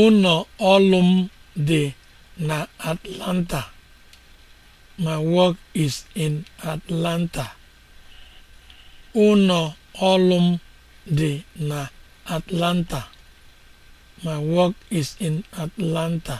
Ụlọ ọrụ m dị na Atlanta. My work na Atlanta. My work is in Atlanta.